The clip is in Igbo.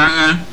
agha